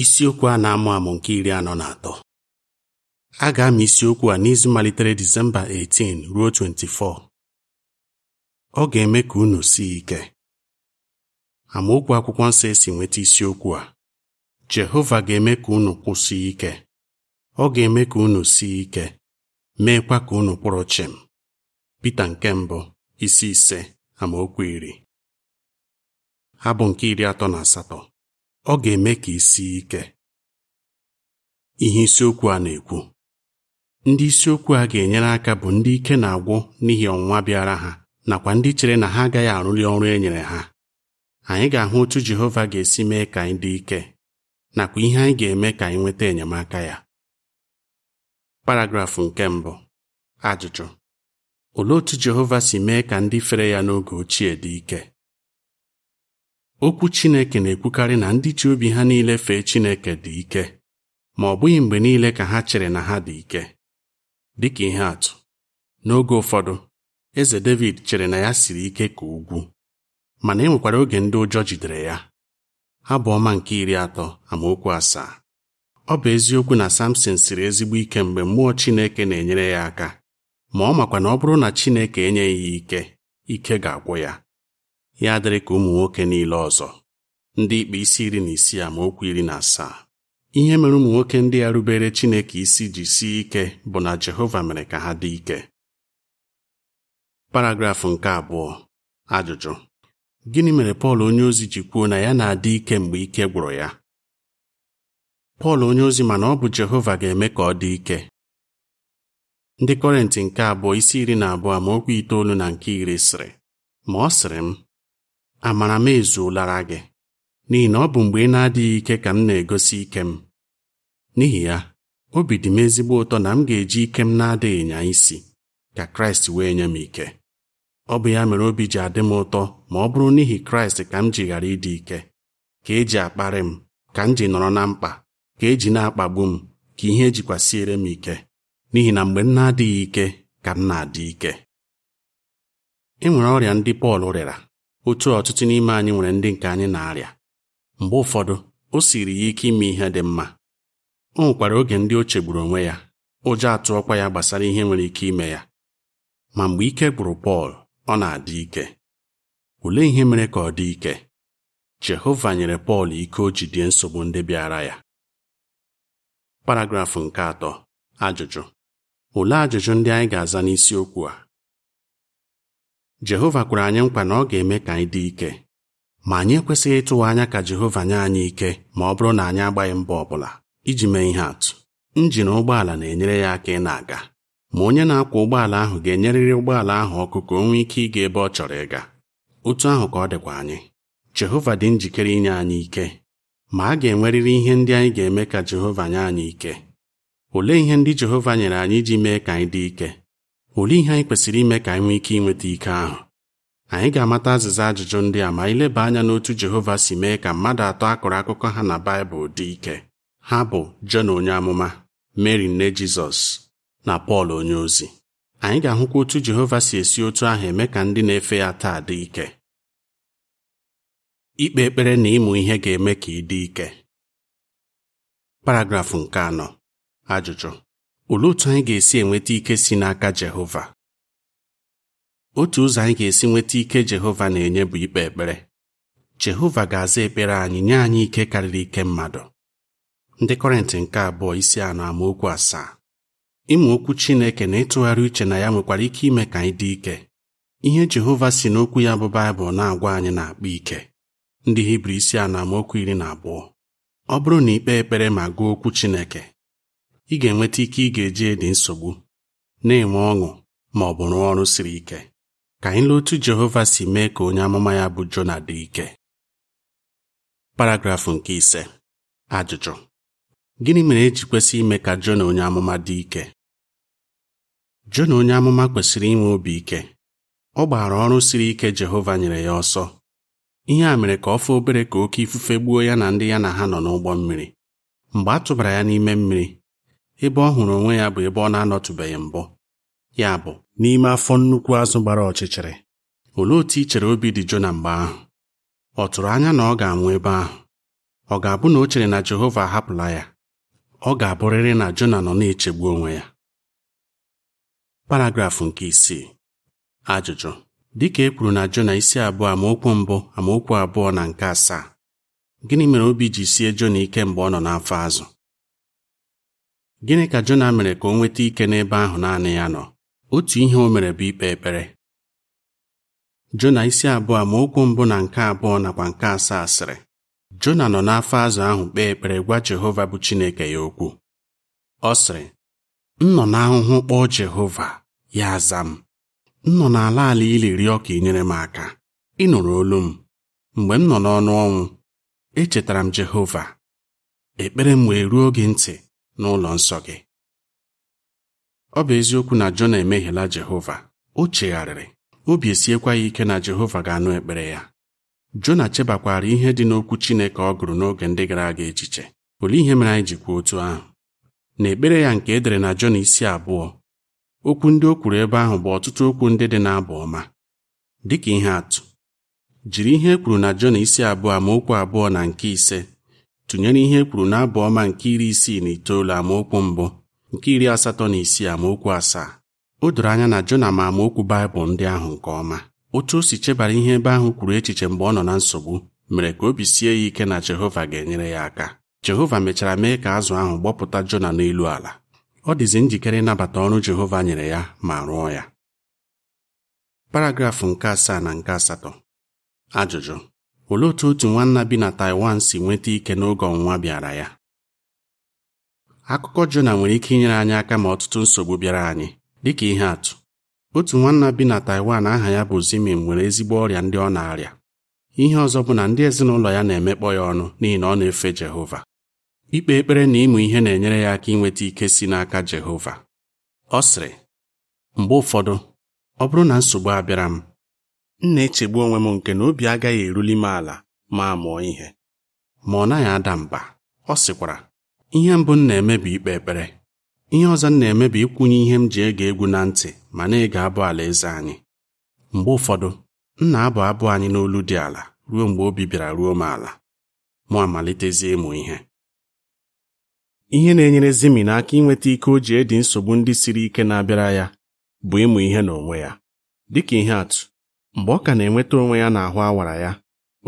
isiokwu a na-amụ amụ nke iri anọ na atọ a ga amị isiokwu a n'izu malitere Disemba 18 ruo 24 ọ ga-eme ka unu sie ike amaokwu akwụkwọ nsọ esi nweta isiokwu a Jehova ga-eme ka unu kwụsị ike ọ ga-eme ka unu sie ike meekwa ka unu kwụrụ chịm Pita nke mbụ isi ise amaokwu iri abụ nke iri atọ na asatọ ọ ga-eme ka isi sie ike ihe isiokwu a na-ekwu ndị isiokwu a ga-enyere aka bụ ndị ike na-agwụ n'ihi ọnwụnwa bịara ha nakwa ndị chere na ha agaghị arụli ọrụ e nyere ha anyị ga-ahụ otu Jehova ga-esi mee ka anyị dị ike nakwa ihe anyị ga-eme ka anyị nweta enyemaka ya paragrafụ nke mbụ ajụjụ olee otu Jehova si mee ka ndị fere ya n'oge ochie dị ike okwu Chineke na-ekwukarị na ndị ji obi ha niile fee Chineke dị ike ma ọ bụghị mgbe niile ka ha chere na ha dị ike dịka ihe atụ n'oge ụfọdụ eze David chere na ya siri ike ka ugwu mana e nwekwara oge ndị ụjọ jidere ya "Ha bụ ọma nke iri atọ amaokwu asaa ọ bụ eziokwu na Samson siri ezigbo ike mgbe mmụọ Chineke na-enyere ya aka ma ọ makwa na ọ bụrụ na Chineke enyeghị ya ike ike ga-agwụ ya ya dịrị ka ụmụ nwoke niile ọzọ ndị ikpe isi iri na isii amaokwu iri na asaa ihe mere ụmụ nwoke ndị a rubere Chineke isi ji sie ike bụ na Jehova mere ka ha dị ike paragrafụ nke abụọ ajụjụ gịnị mere Pọl onyeozi ji kwuo na ya na-adị ike mgbe ike gwụrụ ya Pọl onyeozi mana ọ bụ Jehova ga-eme ka ọ dị ike ndị kọrentị nke abụọ isi iri na abụọ amaokwu itoolu na nke iri sịrị ma ọ sịrị m amara m ezuolara gị n'ihi na ọ bụ mgbe ị na-adịghị ike ka m na-egosi ike m n'ihi ya obi dị m ezigbo ụtọ na m ga-eji ike m na-adịghị nya isi ka Kraịst wee nye m ike ọ bụ ya mere obi ji adị m ụtọ ma ọ bụrụ n'ihi Kraịst ka m ji ghara ịdị ike ka eji akparị m ka m ji nọrọ na mkpa ka eji na-akpagbu m ka ihe ejikwasịere m ike n'ihi na mgbe m na-adịghị ike ka m na-adị ike e nwere ọrịa ndị Pọl rịara otu ọtụtụ n'ime anyị nwere ndị nke anyị na-arịa mgbe ụfọdụ o siri ya ike ime ihe dị mma o nwekwara oge ndị o chegburu onwe ya ụjọ atụọkwa ya gbasara ihe nwere ike ime ya ma mgbe ike gwụrụ Pọl ọ na-adị ike olee ihe mere ka ọ dị ike Jehova nyere Pọl ike o jidie nsogbu ndị bịara ya paragrafụ nke atọ ajụjụ olee ajụjụ ndị anyị ga-aza n'isiokwu a Jehova kwere anyị mkpa na ọ ga-eme ka anyị dị ike ma anyị ekwesịghị ịtụwa anya ka Jehova nye anyị ike ma ọ bụrụ na anyị agbaghị mbọ ọ bụla iji mee ihe atụ injin ụgbọala na-enyere ya aka ị na-aga ma onye na-akwọ ụgbọala ahụ ga-enyerịrị ụgbọala ahụ ọkụ ka o nwee ike ịga ebe ọ chọrọ ịga otu ahụ ka ọ dịkwa anyị Jehova dị njikere inye anyị ike ma a ga-enwerịrị ihe ndị anyị ga-eme ka Jehova nye anyị ike olee ihe ndị Jehova nyere anyị iji mee ka anyị dị ike Olee ihe anyị kwesịrị ime ka anyị nwee ike inweta ike ahụ? Anyị ga-amata azịza ajụjụ ndị a ma anyị leba anya n'otu Jehova si mee ka mmadụ atọ akọrọ akụkọ ha na Baịbụl dị ike. Ha bụ Jọn onye amụma, Mary nne Jizọs na Pọl onye ozi. Anyị ga-ahụkwa otu Jehova si esi otu ahụ eme ka ndị na-efe ya taa dị ike. Ikpe ekpere na ịmụ ihe ga-eme ka ị dị ike. Paragrafụ nke anọ. Ajụjụ Olee otu anyị ga-esi enweta ike si n'aka Jehova? Otu ụzọ anyị ga-esi nweta ike Jehova na-enye bụ ikpe ekpere. Jehova ga-aza ekpere anyị nye anyị ike karịrị ike mmadụ. Ndị Kọrịntị nke abụọ isi anamokwu amaokwu asaa. Ịmụ okwu Chineke na ịtụgharị uche na ya nwekwara ike ime ka anyị dị ike. Ihe Jehova si n'okwu ya bụ Baịbụl na-agwa anyị na-akpa ike. Ndị Hibru isi anamokwu amaokwu iri na abụọ. Ọ bụrụ na ikpe ekpere ma gụọ okwu Chineke ị ga-enweta ike ị ga-eji dị nsogbu na-enwe ọṅụ ma ọ bụ rụọ ọrụ siri ike ka anyị lee otu Jehova si mee ka onye amụma ya bụ Jona dị ike paragrafụ nke ise ajụjụ gịnị mere eji kwesị ime ka Jona onye amụma dị ike Jona onye amụma kwesịrị inwe obi ike ọ gbaara ọrụ siri ike Jehova nyere ya ọsọ ihe a mere ka ọ fụ obere ka oke ifufe gbuo ya na ndị ya na ha nọ n'ụgbọ mmiri mgbe a tụbara ya n'ime mmiri ebe ọ hụrụ onwe ya bụ ebe ọ na-anọtụbeghị mbụ ya bụ n'ime afọ nnukwu azụ gbara ọchịchịrị olee otu i chere obi dị Jona mgbe ahụ ọ tụrụ anya na ọ ga-anwụ ebe ahụ ọ ga-abụ na o chere na Jehova ahapụla ya ọ ga-abụrịrị na Jona nọ na-echegbu onwe ya paragrafụ nke isii ajụjụ dịka e kwuru na Jona isi abụọ amaokwu mbụ amaokwu abụọ na nke asaa gịnị mere obi ji sie Jona ike mgbe ọ nọ n'afọ azụ Gịnị ka Jona mere ka o nweta ike n'ebe ahụ naanị ya nọ? Otu ihe o mere bụ ikpe ekpere. Jona isi abụọ ma okwu mbụ na nke abụọ nakwa nke asaa sịrị. Jona nọ n'afọ azụ ahụ kpee ekpere gwa Jehova bụ Chineke ya okwu. Ọ sịrị, "M nọ n'ahụhụ kpọọ Jehova, ya aza m. M nọ n'ala ala ili rịọ ka ị nyere m aka. Ị nụrụ olu m. Mgbe m nọ n'ọnụ ọnwụ, echetara m Jehova. Ekpere m wee ruo gị ntị. n'ụlọ nsọ gị ọ bụ eziokwu na Jona emehiela Jehova o chegharịrị obi esiekwa ya ike na Jehova ga-anụ ekpere ya Jona chebakwara ihe dị n'okwu Chineke ọ gụrụ n'oge ndị gara aga echiche olee ihe mere anyị ji otu ahụ na ekpere ya nke edere na Jona isi abụọ okwu ndị o kwuru ebe ahụ bụ ọtụtụ okwu ndị dị n'abụ ọma dịka ihe atụ jiri ihe e kwuru na Jona isi abụọ amaokwu abụọ na nke ise tụnyere ihe e kwuru n'abụ ọma nke iri isii na itoolu amaokwu mbụ nke iri asatọ na isii amaokwu asaa o doro anya na Jona ma amaokwu Baịbụl ndị ahụ nke ọma otu o si chebara ihe ebe ahụ kwuru echiche mgbe ọ nọ na nsogbu mere ka obi sie ya ike na Jehova ga-enyere ya aka Jehova mechara mee ka azụ ahụ gbọpụta Jona n'elu ala ọ dịzi njikere ịnabata ọrụ Jehova nyere ya ma rụọ ya paragrafụ nke asaa na nke asatọ ajụjụ olee otu otu nwanna bi na Taiwan si nweta ike n'oge ọnwụnwa bịara ya akụkọ Jona nwere ike inyere anyị aka ma ọtụtụ nsogbu bịara anyị dịka ihe atụ otu nwanna bi na Taiwan aha ya bụ Zimin nwere ezigbo ọrịa ndị ọ na-arịa ihe ọzọ bụ na ndị ezinụlọ ya na-emekpọ ya ọnụ n'ihi na ọ na-efe Jehova ikpe ekpere na ịmụ ihe na-enyere ya aka inweta ike si n'aka Jehova ọ sịrị mgbe ụfọdụ ọ bụrụ na nsogbu abịara m m na-echegbu onwe m nke na obi agaghị eruli m ala ma mụọ ihe ma ọ naghị ada mba ọ sịkwara ihe mbụ m na-eme bụ ikpe ekpere ihe ọzọ m na-eme bụ ịkwụnye ihe m ji ege egwu na ntị ma na-ege abụ eze anyị mgbe ụfọdụ m na-abụ abụ anyị n'olu dị ala ruo mgbe obi bịara ruo m ala mụ amalitezie ịmụ ihe ihe na-enyere zimi n'aka inweta ike o ji edi nsogbu ndị siri ike na-abịara ya bụ ịmụ ihe n'onwe ya dịka ihe atụ mgbe ọ ka na-enweta onwe ya n'ahụ awara ya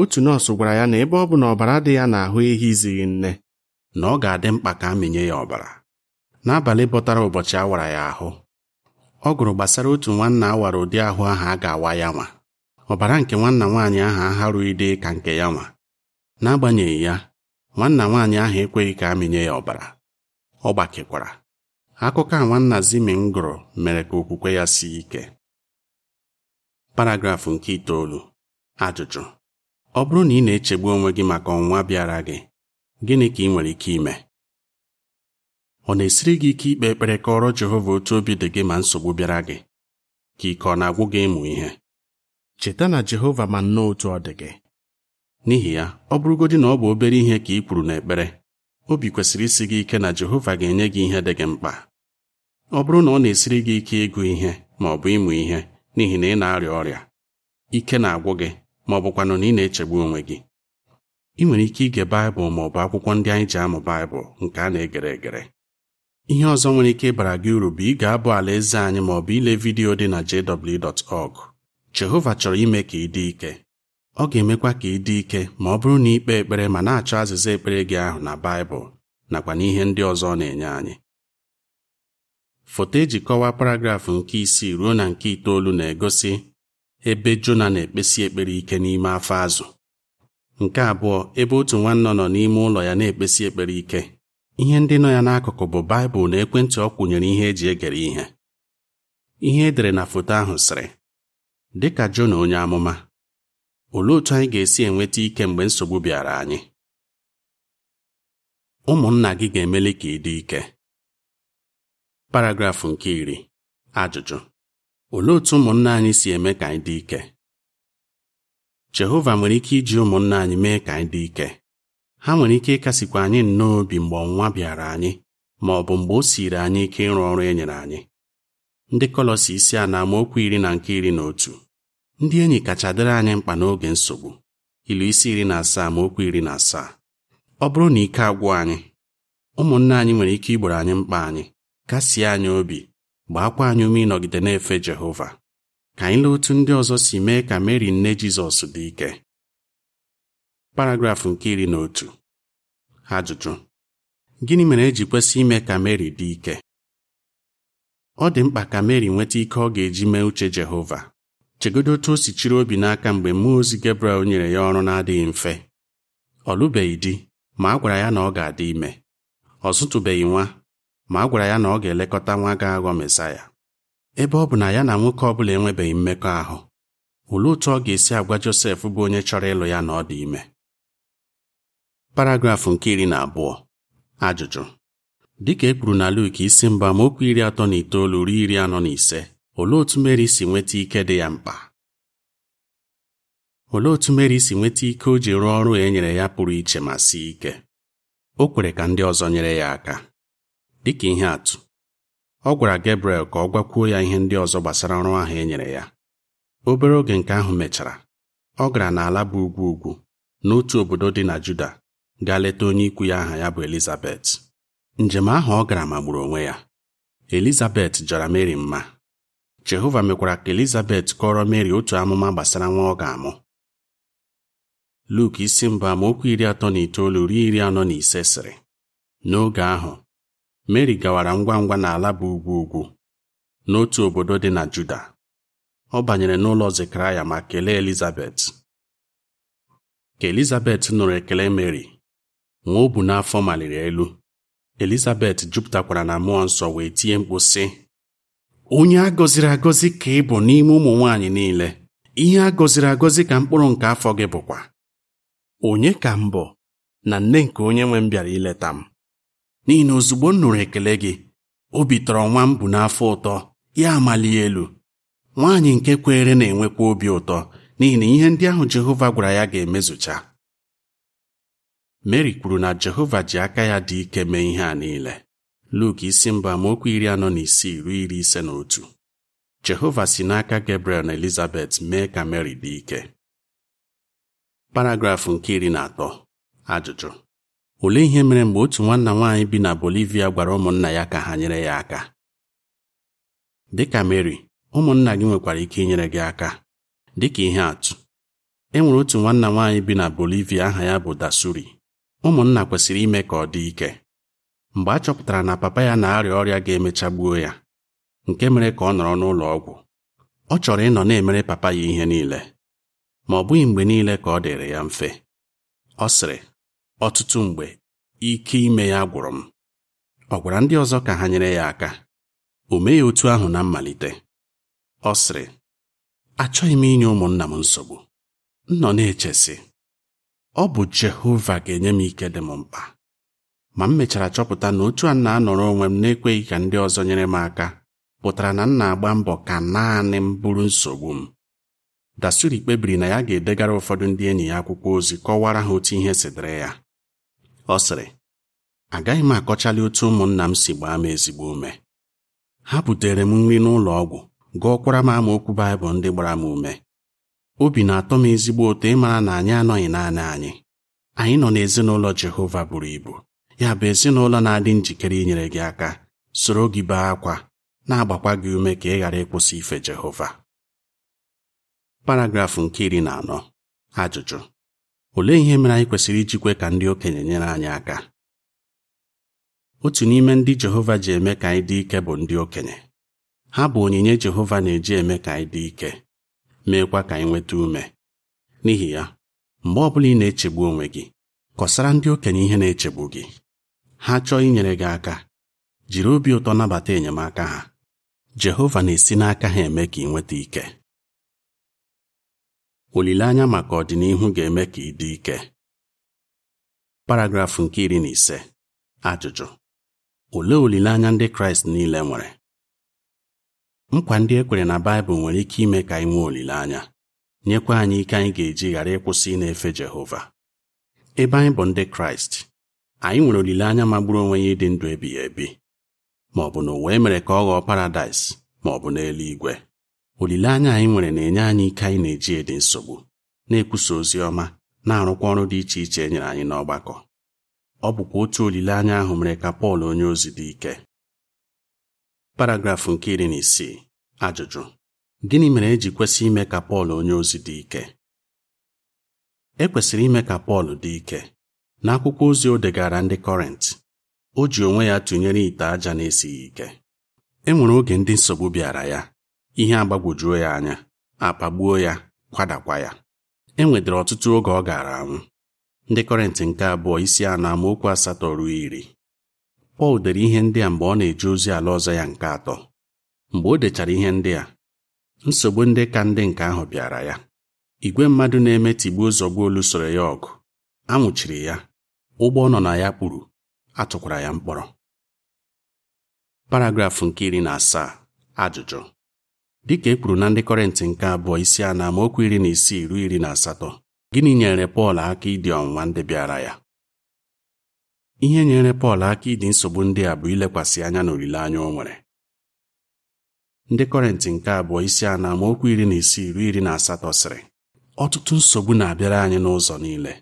otu nọọsụ gwara ya na ebe ọ bụ na ọbara dị ya n'ahụ ehi izighị nne na ọ ga-adị mkpa ka amịnye ya ọbara n'abalị bọtara ụbọchị awara ya ahụ ọ gụrụ gbasara otu nwanna awara ụdị ahụ ahụ a ga-awa ya nwa ọbara nke nwanna nwaanyị ahụ aharụghị dị ka nke ya nwa n'agbanyeghị ya nwanna nwaanyị ahụ ekweghị ka a ya ọbara ọ gbakekwara akụkọ a nwanna zimin gụrụ mere ka okwukwe ya sie ike paragrafụ nke itoolu ajụjụ ọ bụrụ na ị na-echegbu onwe gị maka ọnwa bịara gị gịnị ka ị nwere ike ime ọ na-esiri gị ike ikpe ekpere kọrọ Jehova otu obi dị gị ma nsogbu bịara gị ka ike ọ na-agwụ gị ịmụ ihe cheta na Jehova ma nnọọ otu ọ dị gị n'ihi ya ọ bụrụgodị na ọ bụ obere ihe ka ị kwuru n'ekpere obi kwesịrị isi gị ike na Jehova ga-enye gị ihe dị gị mkpa ọ bụrụ na ọ na-esiri gị ike ịgụ ihe ma ọ bụ ịmụ ihe n'ihi na ị na-arịa ọrịa ike na-agwụ gị ma ọ bụkwanụ na ị na-echegbu onwe gị ị nwere ike ige baịbụl ma ọ bụ akwụkwọ ndị anyị ji amụ baịbụl nke a na-egere egere ihe ọzọ nwere ike ịbara gị uru bụ ịga abụ alaeze anyị ma ọ bụ ile vidiyo dị na jw.org Jehova chọrọ ime ka ị dị ike ọ ga-emekwa ka ị dị ike ma ọ bụrụ na ikpe ekpere ma na-achọ azịza ekpere gị ahụ na baịbụl nakwa n'ihe ndị ọzọ ọ na-enye anyị foto eji kọwaa paragraf nke isii ruo na nke itoolu na-egosi ebe Jona na-ekpesi ekpere ike n'ime afọ azụ nke abụọ ebe otu nwanne nọ n'ime ụlọ ya na-ekpesi ekpere ike ihe ndị nọ ya n'akụkụ bụ Baịbụl na ekwentị ọ kwụnyere ihe eji egere ihe ihe edere na foto ahụ sịrị dịka Jona onye amụma olee otu anyị ga-esi enweta ike mgbe nsogbu bịara anyị ụmụnna gị ga-emeli ka ị dị ike paragrafụ nke iri ajụjụ olee otú ụmụnna anyị si eme ka anyị dị ike Jehova nwere ike iji ụmụnna anyị mee ka anyị dị ike ha nwere ike ịkasịkwa anyị nnọọ obi mgbe ọnwa bịara anyị ma ọ bụ mgbe o siri anyị ike ịrụ ọrụ e nyere anyị ndị Kọlọsi isi a na-amaokwu iri na nke iri na otu ndị enyi kacha dịrị anyị mkpa n'oge nsogbu ilu isi iri na asaa ma okwu iri na asaa ọ bụrụ na ike agwụ anyị ụmụnna anyị nwere ike igboro anyị mkpa anyị kasie anyị obi gbaakwa anyị ume ịnọgide na-efe Jehova ka anyị lee otu ndị ọzọ si mee ka Meri nne Jizọs dị ike paragrafụ nke iri na otu ajụjụ gịnị mere eji kwesị ime ka Meri dị ike ọ dị mkpa ka Meri nweta ike ọ ga-eji mee uche Jehova chegodo otu o si chiri obi n'aka mgbe mmụọ ozi gebrel nyere ya ọrụ na-adịghị mfe ọ lụbeghị di ma a gwara ya na ọ ga-adị ime ọ zụtụbeghị nwa ma a gwara ya na ọ ga-elekọta nwa ga-aghọ mesaya ebe ọ bụ na ya na nwoke ọ bụla enwebeghị mmekọahụ olee otu ọ ga-esi agwa Josef bụ onye chọrọ ịlụ ya na ọ dị ime paragrafụ nke iri na abụọ ajụjụ dịka e kwuru na Luk isi mba okwu iri atọ na itoolu ruo iri anọ na ise olee otu Meri si nweta ike dị ya mkpa olee otu Meri si nweta ike o ji rụọ ọrụ e nyere ya pụrụ iche ma sie ike o kwere ka ndị ọzọ nyere ya aka dịka ihe atụ ọ gwara Gabriel ka ọ gwakwuo ya ihe ndị ọzọ gbasara ọrụ ahụ e nyere ya obere oge nke ahụ mechara ọ gara n'ala bụ ugwu ugwu n'otu obodo dị na Juda gaa leta onye ikwu ya aha ya bụ Elizabet njem ahụ ọ gara magburu onwe ya Elizabet jara Mary mma Jehova mekwara ka Elizabet kọrọ Mary otu amụma gbasara nwa ọ ga-amụ Luk isi mbụ amaokwu iri atọ na itoolu ruo iri anọ na ise sịrị n'oge ahụ Meri gawara ngwa ngwa n'ala bụ ugwu ugwu n'otu obodo dị na Juda. Ọ banyere n'ụlọ Zekaraya ma kelee Elizabet. Ka Elizabet nụrụ ekele Meri, nwa ọ bu n'afọ maliri elu. Elizabet jupụtakwara na mmụọ nsọ wee tie mkpu sị: Onye a gọziri agọzi ka ị bụ n'ime ụmụ nwaanyị niile, ihe a gọziri agọzi ka mkpụrụ nke afọ gị bụkwa. Onye ka m na nne nke onye nwe m bịara ileta m? n'ihi na ozugbo m nụrụ ekele gị obi tọrọ nwa m bụ n'afọ ụtọ ya amali elu nwaanyị nke kweere na-enwekwa obi ụtọ n'ihi na ihe ndị ahụ Jehova gwara ya ga-emezucha Mary kwuru na Jehova ji aka ya dị ike mee ihe a niile Luk isi mba amaokwu iri anọ na isii ruo iri ise na otu Jehova si n'aka Gabriel na Elizabeth mee ka meri dị ike paragrafụ nke iri na atọ ajụjụ olee ihe mere mgbe otu nwanna nwaanyị bi na Bolivia gwara ụmụnna ya ka ha nyere ya aka dịka Mary ụmụnna gị nwekwara ike inyere gị aka dịka ihe atụ e nwere otu nwanna nwaanyị bi na Bolivia aha ya bụ Dasuri ụmụnna kwesịrị ime ka ọ dị ike mgbe a chọpụtara na papa ya na-arịa ọrịa ga-emecha gbuo ya nke mere ka ọ nọrọ n'ụlọ ọgwụ ọ chọrọ ịnọ na-emere papa ya ihe niile ma ọ bụghị mgbe niile ka ọ dịrị ya mfe ọ sịrị ọtụtụ mgbe ike ime ya gwụrụ m ọ gwara ndị ọzọ ka ha nyere ya aka o meghị otu ahụ na mmalite ọ sịrị achọghị m inye ụmụnna m nsogbu m nọ na-echesi ọ bụ Jehova ga-enye m ike dị m mkpa ma m mechara chọpụta na otu a na-anọrọ onwe m na-ekweghị ka ndị ọzọ nyere m aka pụtara na m na-agba mbọ ka naanị m bụrụ nsogbu m Dasuri kpebiri na ya ga-edegara ụfọdụ ndị enyi ya akwụkwọ ozi kọwara ha otu ihe si dịrị ya ọ sịrị agaghị m akọchali otu ụmụnna m si gbaa m ezigbo ume ha butere m nri n'ụlọ ọgwụ gụọkwara m amaokwu baịbụl ndị gbara m ume obi na-atọ m ezigbo ụtọ ịmara na anyị anọghị naanị anyị anyị nọ n'ezinụlọ Jehova buru ibu ya bụ ezinụlọ na-adị njikere inyere gị aka soro gị bee akwa na-agbakwa gị ume ka ị ghara ịkwụsị ife Jehova paragrafụ nke iri na anọ ajụjụ Olee ihe mere anyị kwesịrị iji ka ndị okenye nyere anyị aka? Otu n'ime ndị Jehova ji eme ka anyị dị ike bụ ndị okenye. Ha bụ onyinye Jehova na-eji eme ka anyị dị ike, meekwa ka anyị nweta ume. N'ihi ya, mgbe ọ bụla ị na-echegbu onwe gị, kọsara ndị okenye ihe na-echegbu gị. Ha chọọ inyere gị aka, jiri obi ụtọ nabata enyemaka ha. Jehova na-esi n'aka ha eme ka ị nweta ike. olileanya maka ọdịnihu ga-eme ka ị ike paragrafụ nke iri na ise ajụjụ olee olileanya ndị kraịst niile nwere nkwa ndị e kwere na baịbụl nwere ike ime ka anyị nwee olileanya nyekwa anyị ike anyị ga-eji ghara ịkwụsị na-efe jehova ebe anyị bụ ndị kraịst anyị nwere olileanya magburu onwe ya ịdị ndụ ebighị ebi ma na ụwa emere ka ọ ghọọ paradaịs ma bụ n'eluigwe olileanya anyị nwere na-enye anyị ike anyị na-eji dị nsogbu na-ekwusa ozi ọma na-arụkwa ọrụ dị iche iche e nyere anyị n'ọgbakọ ọ bụkwa otu olileanya ahụ mere ka Pọl onye ozi dị ike paragrafụ nke iri na isii ajụjụ gịnị mere e ji kwesị ime ka Pọl onye ozi dị ike e kwesịrị ime ka Pọl dị ike n'akwụkwọ ozi o degara ndị Kọrint o ji onwe ya tụnyere ite aja na-esighị ike e nwere oge ndị nsogbu bịara ya ihe agbagwojuo ya anya akpagbuo ya kwadakwa ya e nwedịrị ọtụtụ oge ọ gara anwụ ndị kọrịntị nke abụọ isi anọ amaokwu asatọ ruo iri Pọl dere ihe ndị a mgbe ọ na-eje ozi ala ọzọ ya nke atọ mgbe o dechara ihe ndị a nsogbu ndị ka ndị nke ahụ bịara ya igwe mmadụ na-eme tigbuo zọgbuo lụsoro ya ọgụ anwụchiri ya ụgbọ nọ na ya kpuru atụkwara ya mkpọrọ paragrafụ nke iri na asaa ajụjụ dịka e kwuru na ndị kọrịntị nke abụọ isi a na amaokwu iri na isii ruo iri na asatọ gịnị nyere Pọl aka ịdị ọnwụnwa ndị bịara ya ihe nyere Pọl aka ịdị nsogbu ndị a bụ ilekwasị anya na olileanya o nwere ndị kọrịntị nke abụọ isi a na amaokwu iri na isii ruo iri na asatọ sịrị ọtụtụ nsogbu na-abịara anyị n'ụzọ niile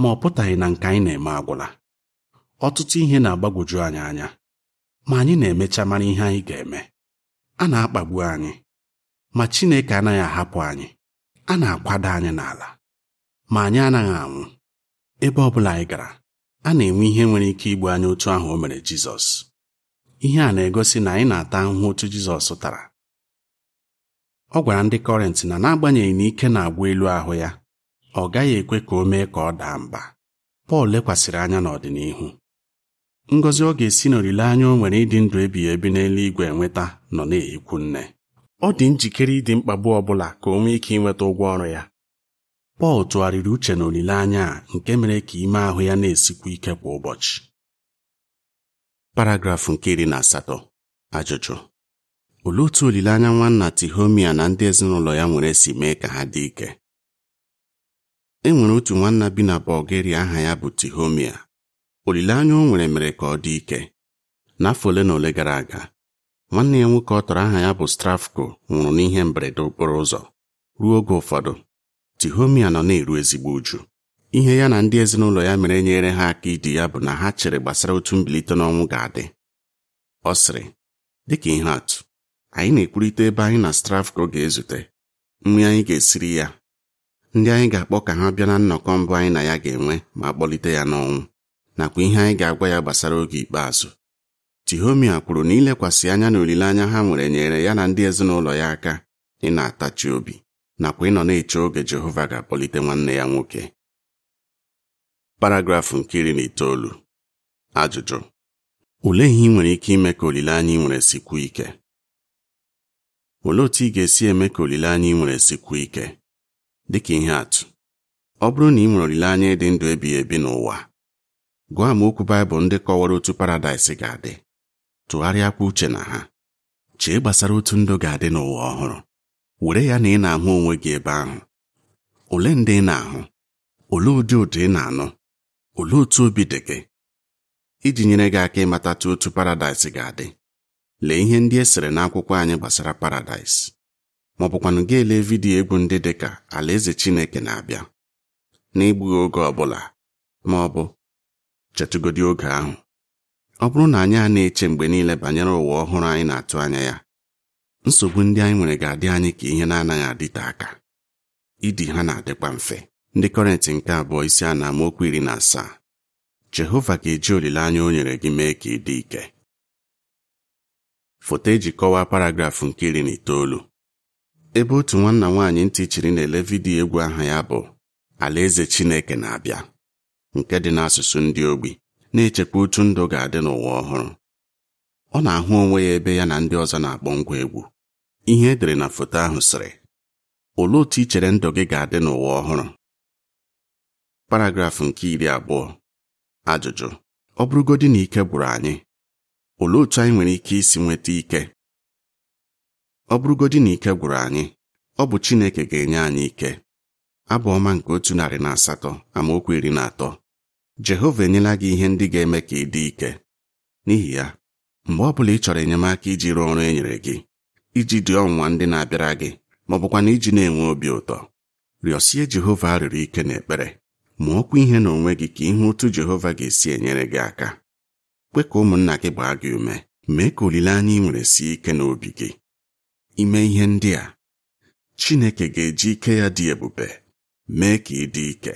ma ọ pụtaghị na nke anyị na-eme agwụla ọtụtụ ihe na-agbagwoju anyị anya ma anyị na-emecha mara ihe anyị ga-eme a na-akpagbu anyị ma Chineke anaghị ahapụ anyị a na-akwado anyị n'ala ma anyị anaghị anwụ ebe ọ bụla anyị gara a na-enwe ihe nwere ike igbu anyị otu ahụ o mere Jizọs ihe a na-egosi na anyị na-ata ahụhụ otu Jizọs tara ọ gwara ndị kọrent na n'agbanyeghị na ike na-agwa elu ahụ ya ọ gaghị ekwe ka o mee ka ọ daa mba Pọl lekwasịrị anya n'ọdịnihu ngọzi ọ ga-esi n'olileanya o nwere ịdị ndụ ebi ebi n'eluigwe enweta nọ na-ekwu nne ọ dị njikere ịdị mkpagbu ọ bụla ka o nwee ike ịnweta ụgwọ ọrụ ya Pọl tụgharịrị uche na olileanya a nke mere ka ime ahụ ya na-esikwu ike kwa ụbọchị paragrafụ nke iri na asatọ ajụjụ olee otu olileanya nwanna Tihomia na ndị ezinụlọ ya nwere si mee ka ha dị ike e nwere otu nwanna bi na Bulgaria aha ya bụ Tihomia olileanya o nwere mere ka ọ dị ike n'afọ ole na ole gara aga nwanne ya nwoke ọ tọrọ aha ya bụ Strafko nwụrụ n'ihe mberede okporo ụzọ ruo oge ụfọdụ Tihomia nọ na-eru ezigbo uju ihe ya na ndị ezinụlọ ya mere nyere ha aka idi ya bụ na ha chere gbasara otu mbilite n'ọnwụ ga-adị ọ sịrị dịka ihe atụ anyị na-ekwurịta ebe anyị na Strafko ga-ezute nri anyị ga-esiri ya ndị anyị ga-akpọ ka ha bịa na nnọkọ mbụ anyị na ya ga-enwe ma kpọlite ya n'ọnwụ nakwa ihe anyị ga-agwa ya gbasara oge ikpeazụ tihomia kwuru na ilekwasị anya na olileanya ha nwere nyere ya na ndị ezinụlọ ya aka ị na-atachi obi nakwa ịnọ na-eche oge Jehova ga-akpọlite nwanne ya nwoke paragrafụ nke iri na itoolu ajụjụ olee ihe ị nwere ike ime ka olileanya ị nwere sikwuo ike olee otu ị ga-esi eme ka olileanya ị nwere sikwuo ike dịka ihe atụ ọ bụrụ na ị nwere olileanya ịdị ndụ ebighị ebi n'ụwa Gwa m okwu baịbụl ndị kọwara otu paradaịs ga-adị tụgharịakwa uche na ha chee gbasara otu ndụ ga-adị n'ụwa ọhụrụ were ya na ị na-ahụ onwe gị ebe ahụ ole ndị ị na-ahụ ole ụdị ụdị ị na-anụ ole otu obi dị gị iji nyere gị aka ịmatatụ otu paradaịs ga-adị lee ihe ndị e sere n'akwụkwọ anyị gbasara paradaịs ma ọ bụkwanụ gị vidiyo egwu ndị dị ka alaeze Chineke na-abịa n'igbughị oge ọ bụla ma ọ bụ chetụgodi oge ahụ ọ bụrụ na anyị a na-eche mgbe niile banyere ụwa ọhụrụ anyị na-atụ anya ya nsogbu ndị anyị nwere ga-adị anyị ka ihe na-anaghị adịte aka idi ha na-adịkwa mfe ndị kọrentị nke abụọ isi a na amaokwu iri na asaa Jehova ga-eji olileanya o nyere gị mee ka ị dị ike foto eji kọwaa paragrafụ nke iri na itoolu ebe otu nwanna nwaanyị ntị chiri na-ele vidiyo egwu aha ya bụ Alaeze Chineke na-abịa nke dị n'asụsụ ndị ogbi na-echekwa otu ndụ ga-adị n'ụwa ọhụrụ ọ na-ahụ onwe ya ebe ya na ndị ọzọ na-akpọ ngwa egwu ihe edere na foto ahụ sịrị olee otu i chere ndụ gị ga-adị n'ụwa ọhụrụ paragrafụ nke iri abụọ ajụjụ ọ bụrụgodị na ike gwụrụ anyị olee otu anyị nwere ike isi nweta ike ọ bụrụgodị na ike gwụrụ anyị ọ bụ Chineke ga-enye anyị ike abụ ọma nke otu narị na asatọ amaokwu iri na atọ Jehova enyela gị ihe ndị ga-eme ka ị dị ike n'ihi ya mgbe ọ bụla ị chọrọ enyemaka iji rụọ ọrụ e nyere gị iji dị ọnwa ndị na-abịara gị ma ọ bụkwa na iji na-enwe obi ụtọ rịọsie Jehova arịrị ike na ekpere ma okwu ihe n'onwe gị ka ihe otu Jehova ga-esi enyere gị aka kwe ka ụmụnna gị gbaa gị ume mee ka olileanya ị nwere sie ike n'obi gị ime ihe ndị a Chineke ga-eji ike ya dị ebube mee ka ị dị ike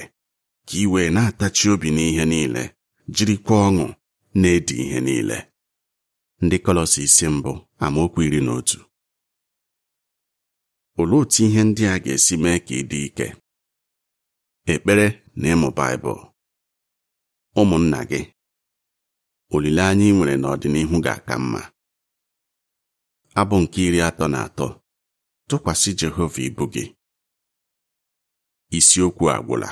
ka ị wee na-atachi obi n'ihe niile jirikwa ọṅụ na-edi ihe niile ndị Kolosi isi mbụ amaokwu iri na otu olee otu ihe ndị a ga-esi mee ka ị dị ike ekpere na ịmụ baịbụl ụmụnna gị olileanya ị nwere n'ọdịnihu ga-aka mma abụ nke iri atọ na atọ tụkwasị Jehova ibu gị isiokwu agwụla